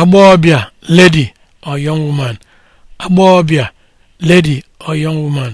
agbọghọbịa lady or young woman agbọghọbịa lady or yọng woman